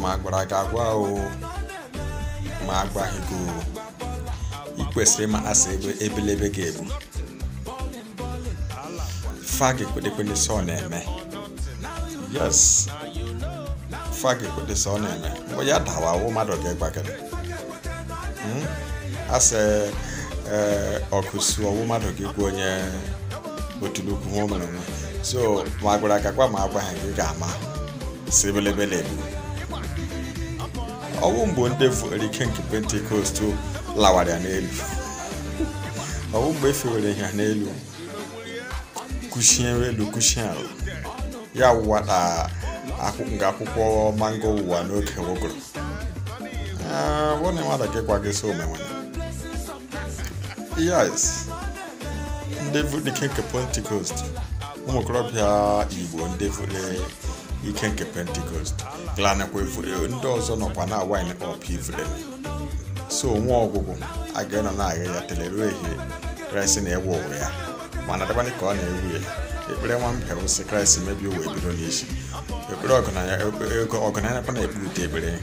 ma gbara gị agwa o ma agwaghị gị o ị kwesịrị ịma asị ebe ebelebe gị ebu fagị kwedekwede sọ na-eme yes fagị kwede sọ na-eme mgbe ya dawa awụ mmadụ ga-egbagara asị ọkụsu ọwụ mmadụ ga-egwu onye otulukwu ha o nwe so ma gị agwa ma agwaghị gị ga-ama sebelebelebe ọnwụ mbụ ndị fere ike nke pentikọst lawara ya n'elu ọnwụ mgbe efewere ha n'elu kuchie elu kuchie ala ya wụwata nke akwụkwọ mango ụwa n'oge wogoro ah, wona nwata gị gwa gị so omenwe yes ndị fere ike nke pentikọst ụmụ okorobịa igbo ndị fere ike nke pentikost glanakwa ifure ndị ọzọ nọkwa na wine ọp ifure so nwe ọgwụgwụ aga ịnọ na-agha ya ruo ehihie kraịst na-ewe ụwa ya mana dabanye ka ọ na-ewu ya ekpere nwa mbịa wụsị kraịst mebi ụwa ebido n'isi ekpere ọgụnanya ọgụnanya na e, e, e, ekpere ekpere